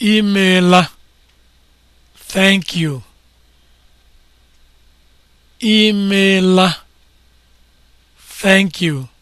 Imeela. Thank you. Thank you.